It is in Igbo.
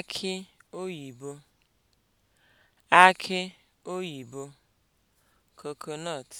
Aki oyibo akị oyibo (coconut)